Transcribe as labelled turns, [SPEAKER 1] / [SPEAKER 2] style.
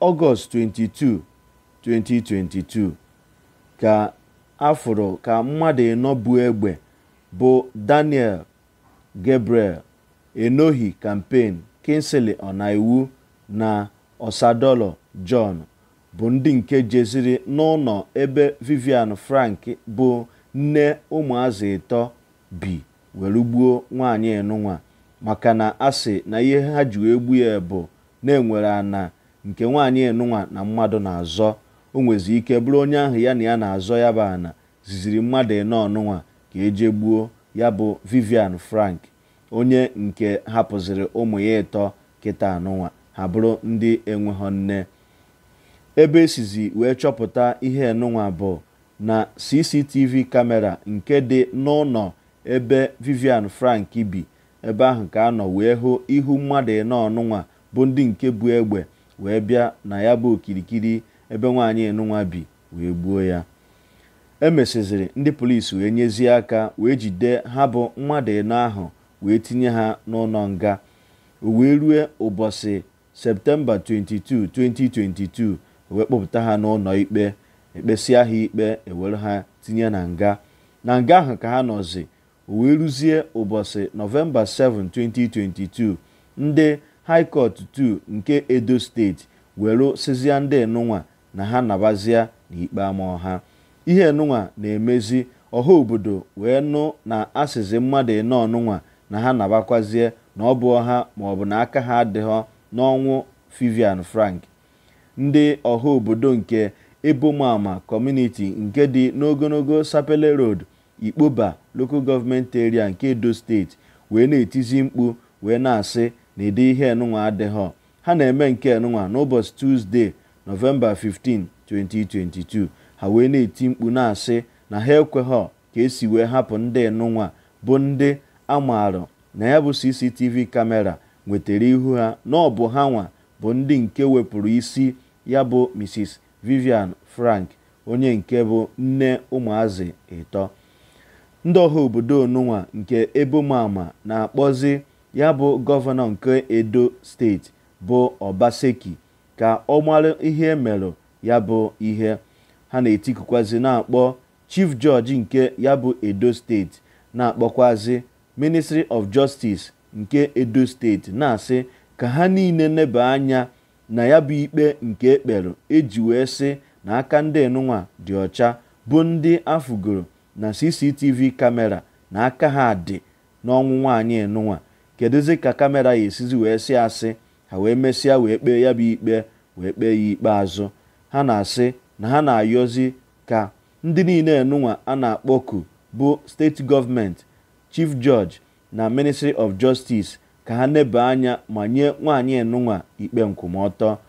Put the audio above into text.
[SPEAKER 1] Ọgọst 22, 2022 ka a ka mmadụ ịnọ bụ egbe bụ Daniel Gabriel Enohi kampen Kingsley Ọnaiwu na osadolo John bụ ndị nke jeziri n'ụlọ ebe Vivian Frank bụ nne ụmụazị ịtọ bi were gbuo nwaanyị nụnwa maka na asị na ihe ha ji egbu ya bụ na enwere ana nke nwaanyị enụnwa na mmadụ na-azọ o nwezi ike bụrụ onye ahụ ya na ya na-azọ ya bụ ana ziziri mmadụ ịnọ ọnụnwa ka eje gbuo ya bụ Vivian Frank onye nke hapụziri ụmụ ya ịtọ kịta anụnwa ha bụrụ ndị enweghọ nne ebe esizi wee chọpụta ihe enụnwa bụ na CCTV kamera nke dị n'ụlọ ebe Vivian Frank bi ebe ahụ ka anọ wee hụ ihu mmadụ ịnọ ọnụnwa bụ ndị nke bụ egbe wee bịa na ya bụ okirikiri ebe nwaanyị enunwa bi wee gbuo ya E emesiziri ndị polisi wee nyezie aka wee jide ha bụ mmadụ ịnọ ahụ wee tinye ha n'ụlọ nga wee rue ụbọchị septemba 22 2022 wee kpọpụta ha n'ụlọ ikpe ekpesia ha ikpe ewere ha tinye na nga na nga ahụ ka ha nọzi wee ruzie ụbọchị nọvemba 7 2022 ndị high court 2 nke edo steeti were sizia ndị nnụnwa na ha nabazia n'ikpe ama ọha ihe nnụnwa na-emezi ọha obodo wee nụ na asịzi mmadụ ịnọ ọnụnwa na ha nabakwazie na ọ bụ ọha maọbụ na aka ha adịghọ n'ọnwụ Vivian Frank ndị ọha obodo nke ebomama kọmuniti nke dị n'ogologo sapele road ikpoba lokal gọọmenti nke edo steeti wee na-etizi mkpu wee na-asị na ede ihe enunwa adighọ ha na-eme nke enunwa n'ụbọchị Tuzdee nọvemba 15 2022 ha wee na-eti mkpu na-asị na ha ekweghọ ka esi wee hapụ ndị enunwa bụ ndị amarụ na ya bụ CCTV kamera nwetara ihu ha na ọ ha nwa bụ ndị nke wepụrụ isi ya bụ Mrs Vivian Frank onye nke bụ nne ụmụazị ịtọ ndị ọha obodo onunwa nke ebumama na-akpọzi ya bụ gọvanọ nke edo steeti bụ obaseki ka ọ mara ihe merụ ya bụ ihe ha na-etikukwazi na-akpọ chief judge nke ya bụ edo steeti na-akpọkwazi ministry of justice nke edo steeti na-asị ka ha niile neba anya na ya bụ ikpe nke ekpere eji wee sị na aka ndị enunwa dị ọcha bụ ndị afụgoro na cctv kamera na aka ha dị n'ọnwụ nwaanyị kedụzi ka kamera ya esizi wee si asị ha wee mesịa wee kpee ya bụ ikpe wee kpee ya ikpeazụ ha na-asị na ha na-ayọzi ka ndị niile enunwa a na-akpọku bụ steeti gọọmenti chief judge na ministry of justice ka ha neba anya ma nye nwaanyị enunwa ikpe nkwụmọtọ